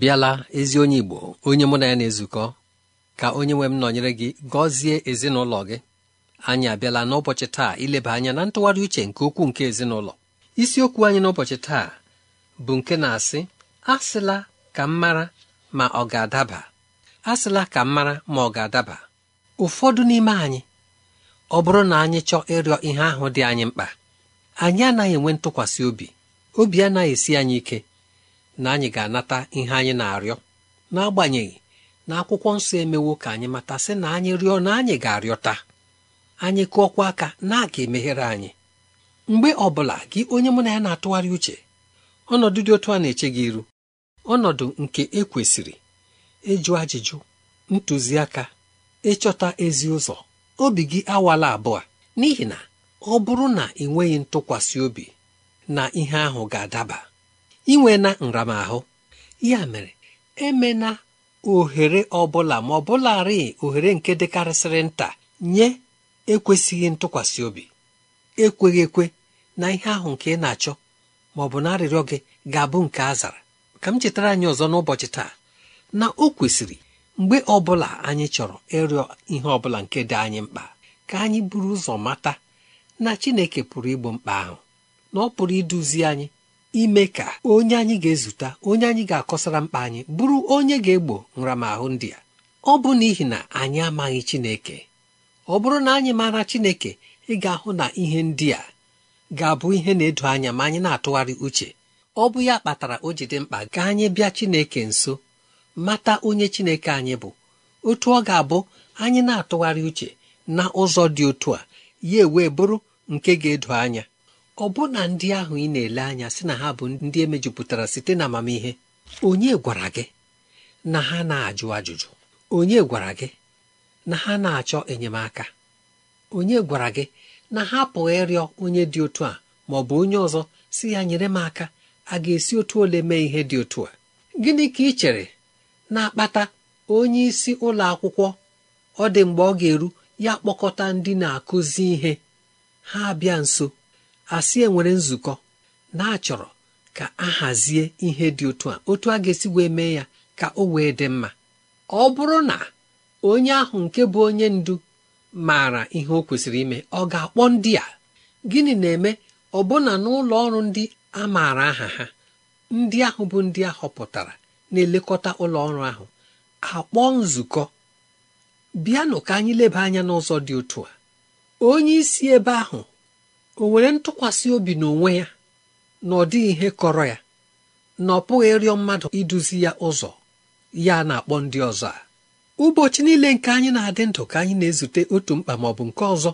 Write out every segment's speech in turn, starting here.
bịala ezi onye Igbo onye mụ na ya na-ezukọ ka onye nwe m nọnyere gị gọzie ezinụlọ gị anyị abịala n'ụbọchị taa ileba anya na ntụgharị uche nke okwu nke ezinụlọ isiokwu anyị n'ụbọchị taa bụ nke na-asị asịla ka m mara ma ọ ga-adaba asịla ka m mara ma ọ ga-adaba ụfọdụ n'ime anyị ọ bụrụ na anyị chọọ ịrịọ ihe ahụ dị anyị mkpa anyị anaghị enwe ntụkwasị obi obi anaghị esi anyị ike na anyị ga-anata ihe anyị na-arịọ n'agbanyeghị na akwụkwọ nsọ emewo ka anyị mata sị na anyị rịọ na anyị ga-arịọta anyị kụọkwa aka na a ga-emeghere anyị mgbe ọ bụla gị onye mụ na ya na-atụgharị uche ọnọdụ dị otu a na-eche gị iru ọnọdụ nke ekwesịrị ịjụ ajụjụ ntụziaka ịchọta ezi ụzọ obi gị awala abụọ n'ihi na ọ bụrụ na ị nweghị ntụkwasị obi na ihe ahụ ga-adaba inwe na nramahụ ya mere emena ohere ọbụla ma ọbụlarị ohere nke dịkarịsịrị nta nye ekwesịghị ntụkwasị obi ekweghị ekwe na ihe ahụ nke ị na-achọ ma ọ bụ na arịrịọ gị ga-abụ nke azara. ka m chetara anyị ọzọ n'ụbọchị taa na o kwesịrị mgbe ọbụla anyị chọrọ ịrịọ ihe ọbụla nke dị anyị mkpa ka anyị buru ụzọ mata na Chineke pụrụ igbo mkpa ahụ na ọ pụrụ iduzi anyị ime ka onye anyị ga-ezute onye anyị ga-akọsara mkpa anyị bụrụ onye ga-egbo nramahụ ndị a ọ bụ n'ihi na anyị amaghị Chineke ọ bụrụ na anyị maara Chineke ị ga-ahụ na ihe ndị a ga-abụ ihe na-edo anya ma anyị na-atụgharị uche ọ bụ ya kpatara o ji dị mkpa ka anyị bịa Chineke nso mata onye Chineke anyị bụ otu ọ ga-abụ anyị na-atụgharị uche na ụzọ dị otu a ya ewee bụrụ nke ga-edo anya Ọ na ndị ahụ ị na-ele anya sị na ha bụ ndị e mejupụtara site na amamihe onye gwara gị na ha na-ajụ ajụjụ onye gwara gị na ha na-achọ enyemaka onye gwara gị na ha pụghị ịrịọ onye dị otu a ma ọ bụ onye ọzọ si ya nyere m aka a ga-esi otu ole mee ihe dị otu a gịnị ka ị chere na-akpata onye ụlọ akwụkwọ ọ dị mgbe ọ ga-eru ya kpọkọta ndị na-akụzi ihe ha bịa nso asị e nwere nzukọ na-achọrọ ka a hazie ihe dị otu a otu a ga-esi wee mee ya ka o wee dị mma ọ bụrụ na onye ahụ nke bụ onye ndu maara ihe o kwesịrị ime ọ ga-akpọ ndị a gịnị na-eme ọbụna n'ụlọ ọrụ ndị a maara aha ha ndị ahụ bụ ndị a họpụtara na-elekọta ụlọ ahụ akpọ nzukọ bịanụ ka anyị leba anya n'ụzọ dị otu a onye isi ebe ahụ o were ntụkwasị obi n'onwe ya na ọ dịghị ihe kọrọ ya na ọ pụghị ịrịọ mmadụ iduzi ya ụzọ ya na-akpọ ndị ọzọ a ụbọchị niile nke anyị na-adị ndụ ka anyị na-ezute otu mkpa ma ọ bụ nke ọzọ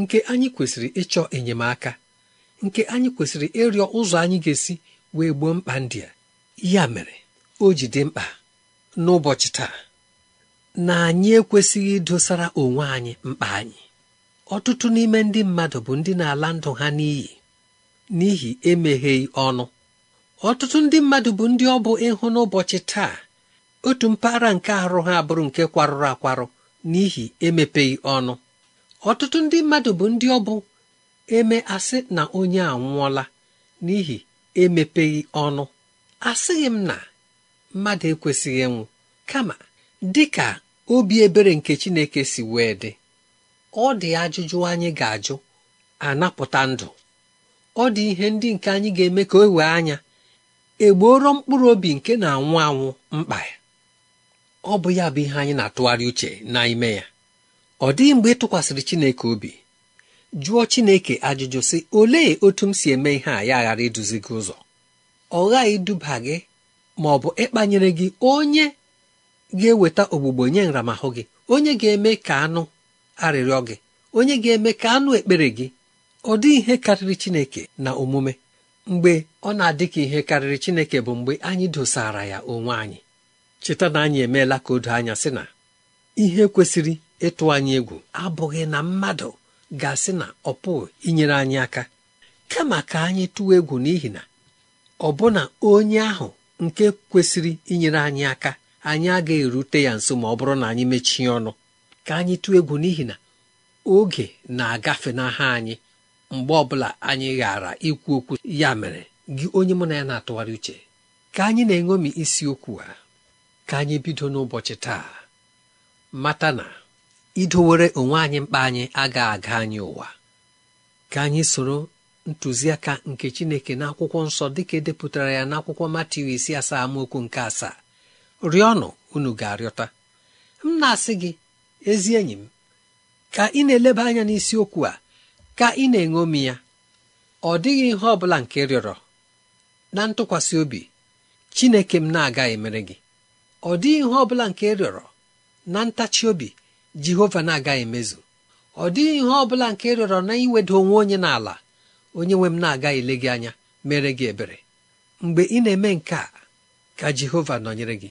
nke anyị kwesịrị ịchọ enyemaka nke anyị kwesịrị ịrịọ ụzọ anyị ga-esi wee gboo mkpa ndị a ya mere o ji dị mkpa n'ụbọchị taa na anyị ekwesịghị idosara onwe anyị mkpa anyị ọtụtụ n'ime ndị mmadụ bụ ndị na-ala ndụ ha n'iyi n'ihi emegheghị ọnụ ọtụtụ ndị mmadụ bụ ndị ọ bụ ịhụ n'ụbọchị taa otu mpaghara nke arụ ha abụrụ nke kwarụrụ akwarụ n'ihi emepeghị ọnụ ọtụtụ ndị mmadụ bụ ndị ọ bụ eme asị na onye anwụọla n'ihi emepeghị ọnụ asịghị m na mmadụ ekwesịghị ịnwụ kama dị ka obi ebere nke Chineke si wee dị ọ dị ajụjụ anyị ga-ajụ anapụta ndụ ọ dị ihe ndị nke anyị ga-eme ka o wee anya egbuoro mkpụrụ obi nke na-anwụ anwụ mkpa ya ọ bụ ya bụ ihe anyị na-atụgharị uche n'ime ya ọ dịghị mgbe ị tụkwasịrị Chineke obi jụọ Chineke ajụjụ sị olee otu m si eme ihe a ya ghara iduzi gị ụzọ ọ ghaghị iduba gị ma ọ bụ ịkpanyere gị onye ga-eweta ogbugbo nye nramahụ gị onye ga-eme ka anụ arịrịọ gị onye ga-eme ka anụ ekpere gị ọ dị ihe karịrị Chineke na omume mgbe ọ na-adị ka ihe karịrị Chineke bụ mgbe anyị dosara ya onwe anyị cheta na anyị emeela ka odo anya sị na ihe kwesịrị ịtụ anyị egwu abụghị na mmadụ ga-asị na ọ pụghị inyere anyị aka kama ka anyị tụwa egwu n'ihi na ọbụna onye ahụ nke kwesịrị inyere anyị aka anyị agaghị erute ya nso ma ọ bụrụ na anyị mechie ọnụ ka anyị tụọ egwu n'ihi na oge na-agafe n'aha anyị mgbe ọbụla anyị ghara ikwu okwu ya mere gị onye mụ na ya na-atụgharị uche ka anyị na enwemi isi okwu a ka anyị bido n'ụbọchị taa mata na idowere onwe anyị mkpa anyị aga aga anyị ụwa ka anyị soro ntụziaka nke Chineke n'akwụkwọ nsọ dịka edepụtara ya n'akwụkwọ akwụkwọ isi asaa amaokwu nke asaa rịọnụ unu ga-arịọta m na-asị gị ezi enyi m ka ị na-eleba anya n'isiokwu a ka ị na-eṅomi ya ọ dịghị ihe ọ bụla nke rịọrọ na ntụkwasị obi Chineke m na-aga emere gị ọ dịghị ihe ọ bụla nke rịọrọ na ntachi obi Jehova na-aga emezu ọ dịghị ihe ọ bụla nke rịọrọ na iweda onwe onye n'ala onye nwe m na-aga ele gị anya mere gị ebere mgbe ị na-eme nke a ka Jehova nọnyere gị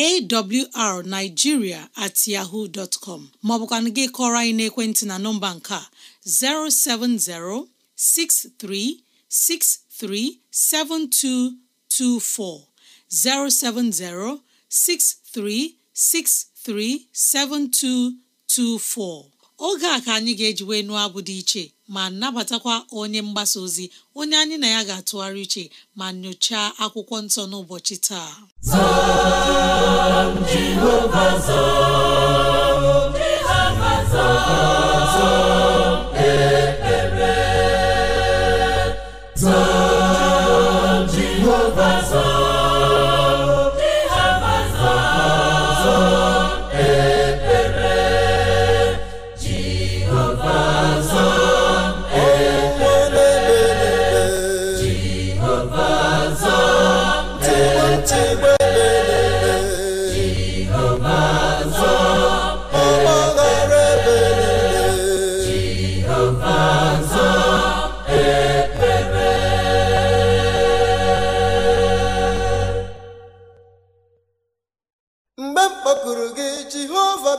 awrnigeria@yahoo.com ma ọ bụkwa nke ị kọrọ anyị n'ekwentị na nọmba nke a; 070-6363-7224, 070-6363-7224. Oge a ka anyị ga-eji nụ abụ dị iche. ma nnabatakwa onye mgbasa ozi onye anyị na ya ga-atụgharị uche ma nyochaa akwụkwọ nsọ n'ụbọchị taa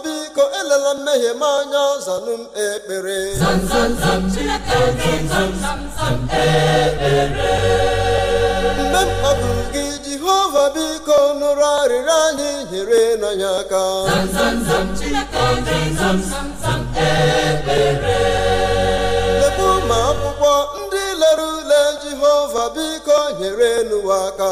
biko elela mmehie m anya zanụ m ekpere mgbe m kpọburu gị jehova biko nụrụ arịrịọ anyị nyere n'anya aka lekwu ma akwụkwọ ndị lere ule jehova biko nyere n'ụwa aka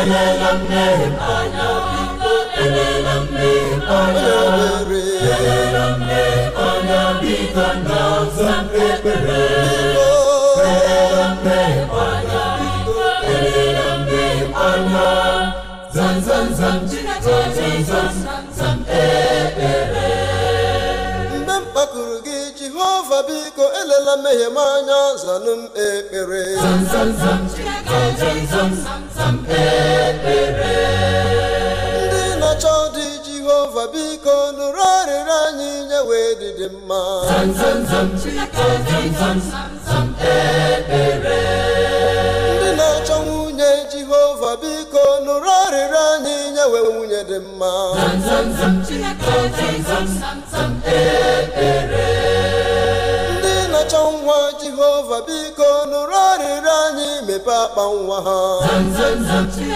elela mmehie m anya biko elela mmehie m anya elela mmehie m anya biko nna ọza m ekpere elela mmehie m anya biko elela mmehie m anya zam zam zam zam zam zam ekpere jehova biko elela mmehie m anya zanụ m ekpere ndị na-achọ dị jehova biko nụrụ arịrị anyị nye wee dịdị mma ndị na-achọ nwunye jehova biko nụrụ arịrị anyị nye wee nwunye dị mma ekpere. na-achọ nwa jehova biko nụrụ arịrịọ anyị mepe akpa nwa ha ndị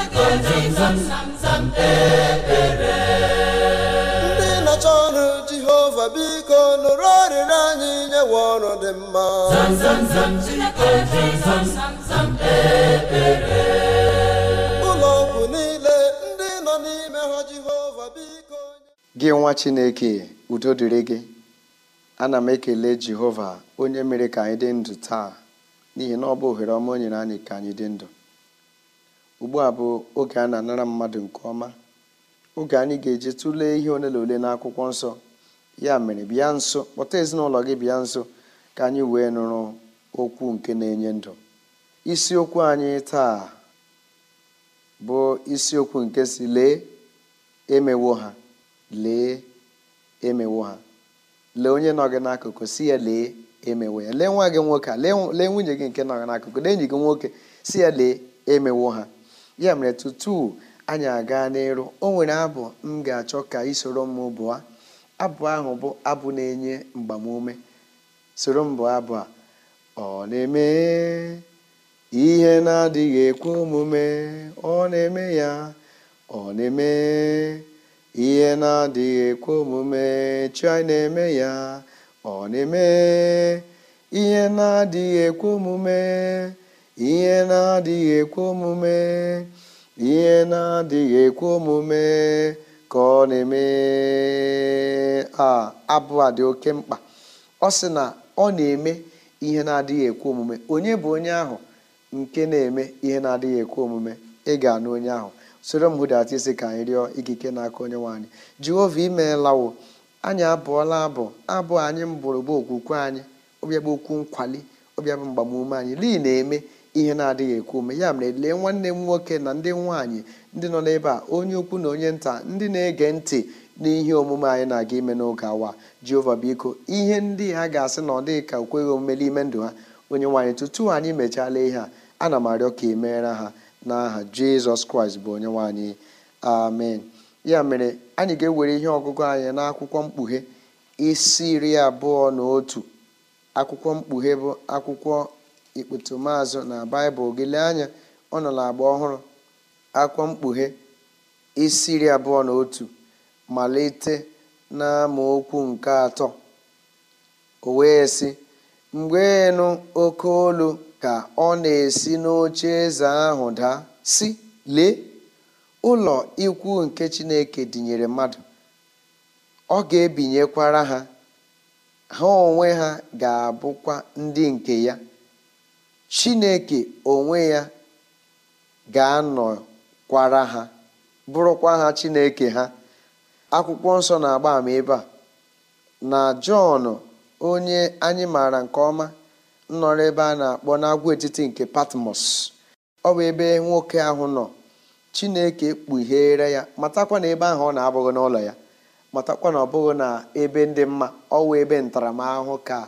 na-achọ ọrụ jehova biko nụrụ arịrịọ anyị nyewe ọrụ dị mma e, e, e, ụlọ ọgwụ niile ndị nọ n'ime ha jehova biko gị nwa chineke udo dịrị gị ana m ekele jehova onye mere ka anyị dị ndụ taa n'ihi na ọ bụ ohere ọma onyere anyị ka anyị dị ndụ ugbu a bụ oge a na-anara mmadụ nke ọma oge anyị ga-eji tụlee ihe ole na ole n'akwụkwọ nsọ ya mere bịa nso kpọta ezinụlọ gị bịa nso ka anyị wee nụrụ okwu nke na-enye ndụ isiokwu anyị taa bụ isiokwu nke si lee emewo ha lee emewo ha lee onye nọ gị n'akụkụ si ya lee emewe ya lee nwa gị nwoke a lee nwunye gị nke nọ n'akụkụ lee enyi gị nwoke si ya lee emewo ha ya mere tutu anyị aga n'elu o nwere abụ m ga-achọ ka ị soro m bụọ abụ ahụ bụ abụ na-enye mgbamume soro m bụọ abụ a ọ na-eme ihe na-adịghị ekwe omume ọ na-eme ya ọ na-eme ihe na-adịghị ekwe omume chi na-eme ya ọ na-eme ihe na-adịghị ekwe omume ihe na-adịghị ekwe omume ihe na-adịghị ekwe omume ka ọ na-eme a abụ a dị oke mkpa ọ sị na ọ na-eme ihe na-adịghị ekwe omume onye bụ onye ahụ nke na-eme ihe na-adịghị ekwe omume ị ga-anụ onye ahụ soro m hụdata isi ka anyị rịọ ikike n'aka onye nwanyị jehova imeelawo anyị abụọla abụ abụ anyị mbụrụ bụ okwukwe anyị ọbịa okwu nkwali ọbịa mgbamume anyị lii na-eme ihe na-adịghị ekwu ume ya mere lee nwanne m nwoke na ndị nwaanyị ndị nọ n'ebe a onye ukwu na onye nta ndị na-ege ntị n'ihe omume anyị na-aga ime n'oge awa jehova biko ihe ndị ha ga-asị na ọ dịghị ka okweghị omume n'ime ndụ ha onye nwaanyị tutu anyị mechala ihe a ana m arịọ ka emere ha n'aha jizọs kraịst bụ onye nwaanyị amen ya mere anyị ga-ewere ihe ọgụgụ anyị n'akwụkwọ mkpughe isi iri abụọ na otu akwụkwọ mkpughe bụ akwụkwọ ikpetumazụ na baịbụl gị lee anya ọ nọ n'agba ọhụrụ akwụkwọ mkpughe isi iri abụọ na otu malite na amaokwu nke atọ o wee sị mgbe nụ oke olu ka ọ na-esi n'oche eze ahụ daa si lee ụlọ ikwu nke Chineke dinyere mmadụ, ọ ga-ebinyekwara ha, ha onwe ha ga-abụkwa ndị nke ya. Chineke onwe ya ga-anọkwara ha, bụrụkwa ha Chineke ha. Akwụkwọ nsọ na-agba ama ebe a na Jọn onye anyị maara nke ọma nọrọ ebe a na-akpọ n'agwaetiti nke Patmos ọ bụ ebe nwoke ahụ nọ chineke kpughere ya matakwa na ebe ahụ ọ na-abụghị n'ụlọ ya matakwa na ọ bụghị na ebe ndị mma ọwụ ebe ntaramahụhụ ka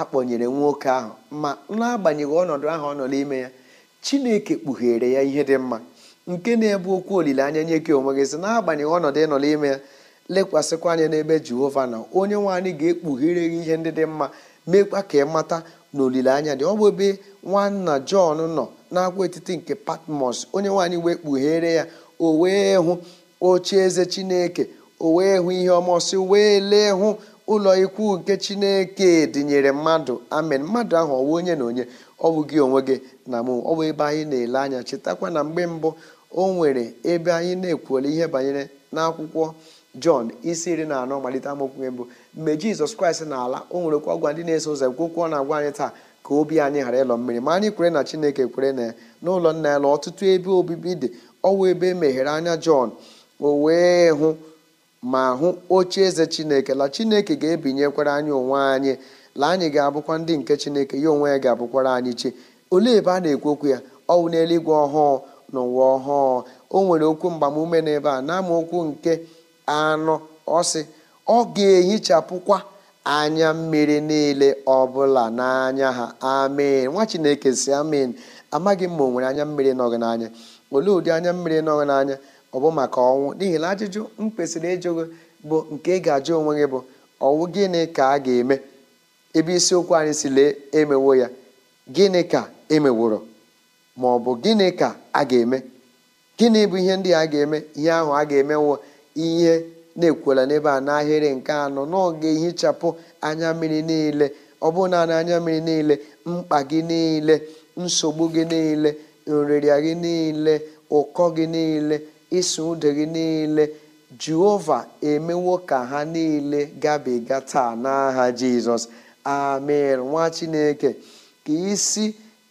akpọnyere nwoke ahụ ma n'agbanyeghị ọnọdụ ahụ ọ nọ n'ime ya chineke kpughere ya ihe dị mma nke na-ebu okwu olileanya nye gị onwe gị si n'agbanyeghị ọnọdụ ịnọ n'ime ya lekwasịkwa anya n'ebe jehova nọ onye nwe anyị ga-ekpughere gị ihe ndị dị mma meekwa ka ị mata na olileanya dị ọ bụ ebe nwanna Jọn nọ n'agwa etiti nke Patmos onye nwaanyị wee kpughere ya o wee hụ oche eze Chineke o wee hụ ihe ọmọsị wee lee hụ ụlọ ikwu nke Chineke dịnyere mmadụ amen mmadụ ahụ ọwụ onye na onye ọ bụ gị onwe gị na mụ ọ bụ ebe anyị na-ele anya chetakwa na mgbe mbụ o nwere ebe anyị na-ekwuola ihe banyere n'akwụkwọ Jọn isi iri na anọ malite amaokwu mbụ mgbe jizọs kraịst na ala o nwerekwa ndị na-eso ụzọ gwokwo na-agwa anyị taa ka obi anyị ghara ịlọ mmiri ma anyị kwere na chineke kwere na n'ụlọ nna ya ọtụtụ ebe obibi dị ọwa ebe e meghere anya jọn o wee hụ ma hụ oche eze chineke la chineke ga-ebinyekwara anyị onwe anyị la anyị ga-abụkwa ndị nke chineke ya onwe ya ga-abụkwara anyị chi olee ebe a na-ekwu okwu ya ọwụ n'eluigwe ọhụụ na ụwa ọhụụ o nwere okwu mgbamume n'ebe a na amaokwu nke anọ ọsị ọ ga-ehichapụkwa anya mmiri niile ọbụla n'anya ha amen nwa chineke si amin amaghị m ma o nwere anya mmiri nọghị n'anya olee ụdị anya mmiri nọghị n'anya ọ bụ maka ọnwụ n'ihi na ajụjụ m kwesịrị ịjụ gị bụ nke ị ga-ajụ onwe gị bụ ọnwụ gịnị ka a ga-eme ebe isiokwu anyị si lee emewo ya gịnị ka emeworo ma ọ bụ gịnị ka a ga-eme gịnị bụ ihe ndị a ga-eme ihe ahụ a ga-emewo ihe na ekwela n'ebe a n'ahịrị nke anọ n'oge ọ ehichapụ anya mmiri niile ọ bụ naanị anya mmiri niile mkpa gị niile nsogbu gị niile nrịrịa gị niile ụkọ gị niile ịsụ ude gị niile jehova emewo ka ha niile gabiga taa n'aha jizọs amen nwa chineke ka isi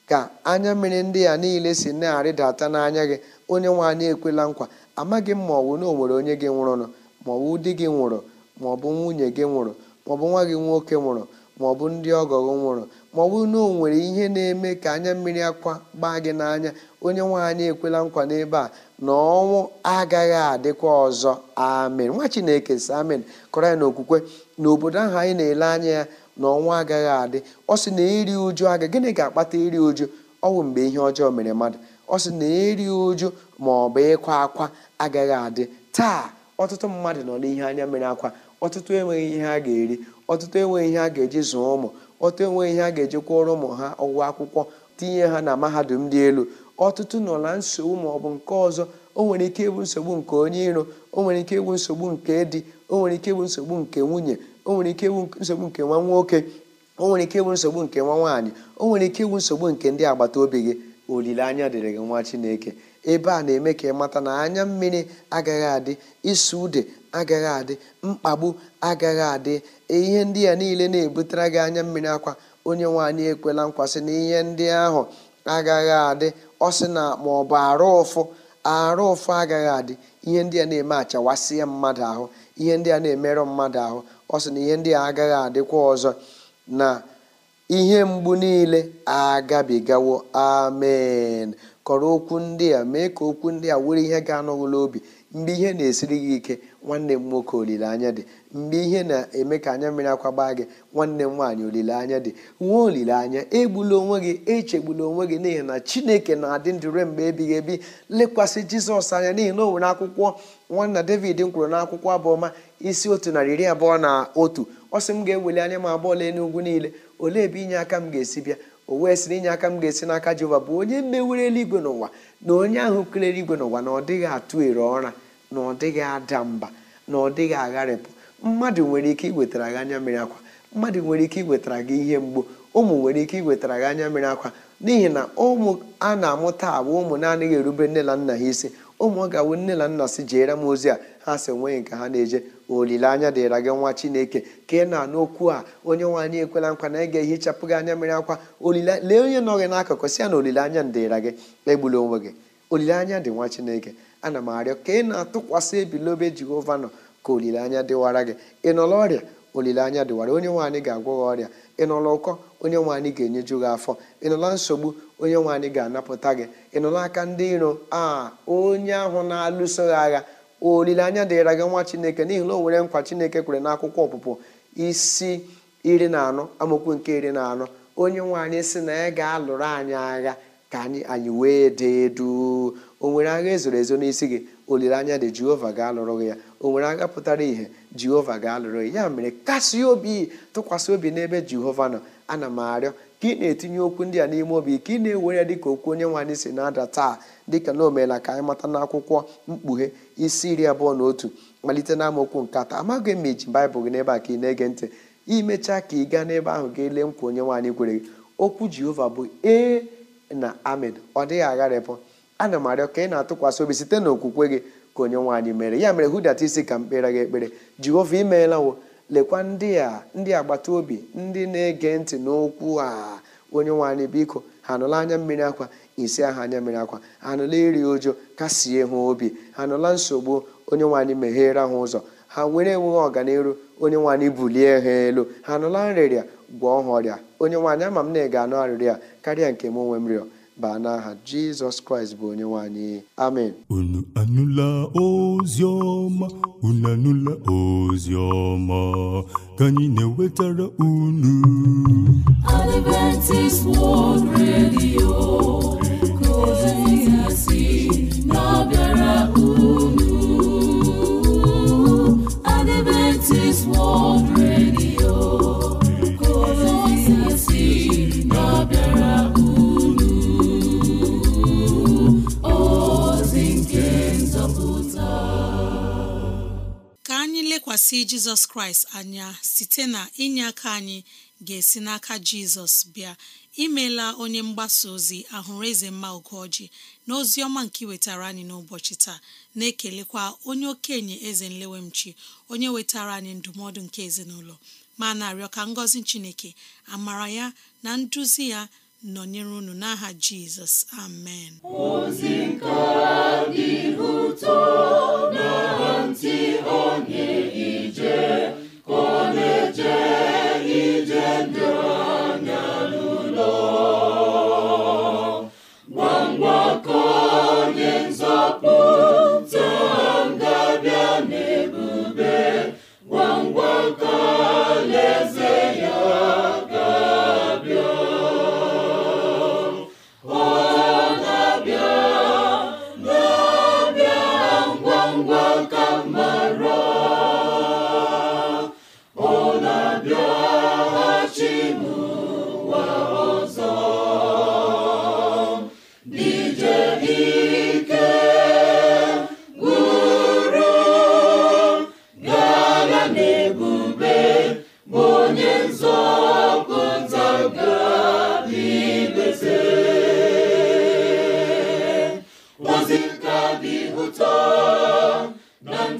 ka anya mmiri ndị a niile si na-arịdata n'anya gị onye nwe anyị ekwela nkwa amaghị m ma ọ bụ na o nwere onye gị nwụrụnụ maọbụ di gị nwụrụ maọbụ nwunye gị nwụrụ maọbụ nwa gị nwoke nwụrụ maọbụ ndị ọgọ nwụrụ maọbụ na o nwere ihe na-eme ka anya mmiri akwa gbaa gị n'anya onye nwaanyị ekwela nkwa n'ebe a na ọnwụ agaghị adịkwa ọzọ amen nwa chineke si amen kọrọ ya n'okwukwe na obodo ahụ anyị na-ele anya ya na ọnwụ agaghị adị ọ sị na iri uju aga gịnị ga-akpata iri uju ọ bụ mgbe ihe ọjọọ mere mmadụ ọ sị na iri uju ma ọ bụ ịkwa akwa agaghị adị taa ọtụtụ mmadụ nọ n'ihe anya mere akwa ọtụtụ enweghị ihe ha ga-eri ọtụtụ enweghị ihe ha ga-eji zụọ ụmụ ọtụtụ enweghị ihe ha ga-eji kwụọrọ ụmụ ha ụgwọ akwụkwọ tinye ha na mahadum dị elu ọtụtụ nọ na nsogbu ma ọ bụ nke ọzọ o nwere ike ịbụ nsogbu nke onye iro o nwere ike ịbụ nsogbu nke di o nwere ike ịbụ nsogbu nke nwunye o nwere ike ịbụ nsogbu nke nwa nwoke o nwere ike ịbụ nsogbu nke nwa nwaanyị o nwere ike ịbụ nsogbu nke ndị agbata obi gị olileanya dịrị gị nwa chineke ebe a na-eme ka ịmata na anya mmiri agaghị adị isu ude agaghị adị mkpagbu agaghị adị e, ihe ndị a niile na-ebutere gị anya mmiri akwa onye nwaanyị ekwela nkwasị na ihe ndị ahụ agaghị adị ọ sị na ma ọ bụ arụ ụfụ arụ ụfụ agaghị adị ihe ndị a na-eme achawasịa mmadụ ahụ ihe ndị a na-emerụ mmadụ ahụ ọ sị na ihe ndị a agaghị adịkwa ọzọ na ihe mgbu niile agabigawo amen kọrọ okwu ndị a mee ka okwu ndị a were ihe ga-anọwụla obi mgbe ihe na-esiri gị ike nwanne m nwoke olileanya dị mgbe ihe na-eme ka anya mmiri akwa gbaa gị nwanne m nwaanyị olileanya dị nwee olileanya egbula onwe gị echegbula onwe gị n'ihi na chineke na-adị ndụ ruo mgbe ebighị ebi lekwasị jizọs anya n'ihi na o nwere akwụkwọ nwanna david m kwuru n'akwụkwọ abụọma isi otu narị iri abụọ na otu ọ sị m ga-eweli anya m abụọ lee n'ugwu niile olee ebe inye aka m ga-esi bịa o wee na inye aka m ga-esi n'aka jehova bụ onye mewere eluigwe n'ụwa na onye ahụ kere eluigwe n'ụwa na ọ dịghị atụ ere ọra na ọ dịghị ada mba na ọ dịghị agharịpụ mmadụ nwere ike iwetara gị anya mmiri akwa mmadụ nwere ike iwetara gị ihe mgbu ụmụ nwere ike iwetara gị anya mmiri akwa n'ihi na ụmụ a na-amụta abụ ụmụ na-adịghị erube nne na nna ha isi ụmụ ọ ga-awụ nne na nna si jeere m ozi a ha si enweghị nke ha na-eje olileanya dịra gị nwa chineke ka ị na-anụ okwu a onye nwaanyị ekwela nkwa na ị ga-ehichapụ gị anya mmiri akwa lee onye nọ gị n'akụkụ si ya na olileanya dịra gị egbula onwe gị olileanya dị nwa chineke ana m arịọ ka ị na-atụkwasị ebilobe jehova nọ ka olileanya dịwara gị ị nọla ọrịa olileanya dịwara onye nwaanyị ga-agwọ gị ọrịa ị nọla ụkọ onye nwaanyị ga-enyeju gị afọ ị nọla nsogbu onye nwaanyị ga-anapụta gị ị nọla aka ndị iro a onye ahụ na-alụso gị agha olileanya dịịra gị nwa chineke n'ihi na o nwere nkwa chineke kwere n'akwụkwọ ọpụpụ isi iri na anọ amaokwu nke iri na anọ onye nwe anyị si na ya ga-alụrụ anyị agha ka anyị anyị wee dị duu o nwere agha ezoro ezo n'isi gị olileanya dị jehova ga-alụrụ gị ya o nwere agha pụtara ìhè jehova ga-alụrụ gị ya mere kasie obi tụkwasị obi n'ebe jehova nọ ana m arịọ ka ị na-etinye okwu ndị a n'ime obi ka ị na-ewere ya dịka okwu onye nwanyị si na-ada taa dịka na omeela ka anyị mata n'akwụkwọ mkpughe isi iri abụọ na otu malite na amaokwu nke atọ amaghị m iji baịbụl gị n'ebe a ka ị na-ege ntị imechaa ka ị gaa n'ebe ahụ gị lee nkwa onye nwaanyị anyị kwere gị okwu jehova bụ ee na amen ọ dịghị agharịpụ ana m arịọ ka ị na-atụkwasị obi site na okwukwe gị ka onye nwaanyị mere ya mere hudata isi ka m kpere gị ekpere jehova imeela wo lekwa ndị a ndị agbata obi ndị na-ege ntị n'okwu a onye nwe biko ha nụla anya mmiri akwa isi aha anya mmiri akwa ha anụla iri ụjọ kasie ha obi ha anụla nsogbu onye nwanyị megheere meghere ha ụzọ ha were enweghị ọganiru onye nwe bulie ha elu ha anụla nrịrịa gwọọ ha ọrịa onye nwaanyị ama m na ị ga-anụ arịrịa karịa nke m onwe m rịọ baa n'aha jizọs kraịst bụ onye nwanyị amen unu anụla ozi ọma unu anụla ozi ọma ka anyị na-ewetara unu Adventist World Radio si jizọs kraịst anya site na inye aka anyị ga-esi n'aka jizọs bịa imela onye mgbasa ozi ahụrụ eze mma ogoji na ozi ọma nke wetara anyị n'ụbọchị taa na-ekelekwa onye okenye eze nlewemchi onye wetara anyị ndụmọdụ nke ezinụlọ ma na-arịọ ka chineke amara ya na nduzi ya nọnyere unu n'aha jizọs amen ozi nke dị ụtọ na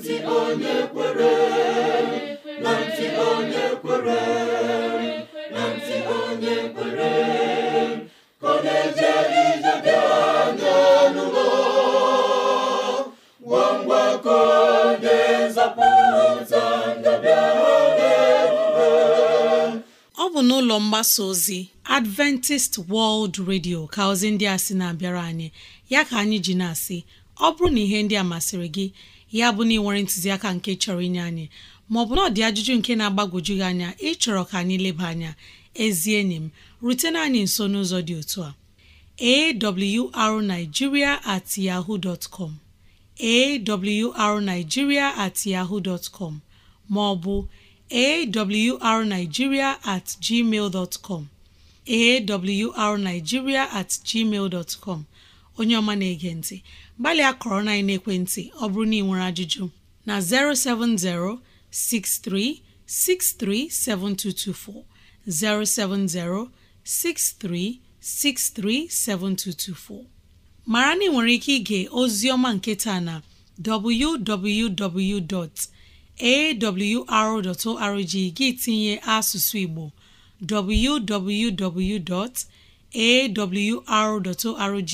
ntị onye kwere na ntị onye kwere na ntị onye kwere ka ọ na-eje ije dị anya n'ụlọ gwa mgbakọ ga-ezapụta ndabịa ọ bụ n'ụlọ mgbasa ozi Adventist World Radio ka ozi ndị a sị na-abịara anyị ya ka anyị ji na-asị ọ bụrụ na ihe ndị a masịrị gị ya bụ na ị nwere ntụziaka nke chọrọ inye anyị maọbụ na ọ dị ajụjụ nke na-agbagwoju gị anya ịchọrọ ka anyị leba anya ezi enyi m rutena anyị nso n'ụzọ dị otu a awrnigeria at yahoo dot com at yahoo dot com maọbụ awrnigeria at gmail dot com at gmail dot onye ọma na-ege ntị gbalịa kọrọ na ekwentị ọ bụrụ na ị nwere ajụjụ na 070 6363 7224 070 6363 7224 mara na ị nwere ike ige ozi ọma nketa na www.awr.org gị tinye asụsụ Igbo www.awr.org